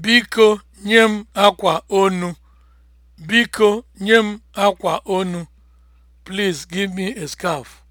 Biko nye m akwa onu. Biko nye m akwa onu. Please give me a scarf.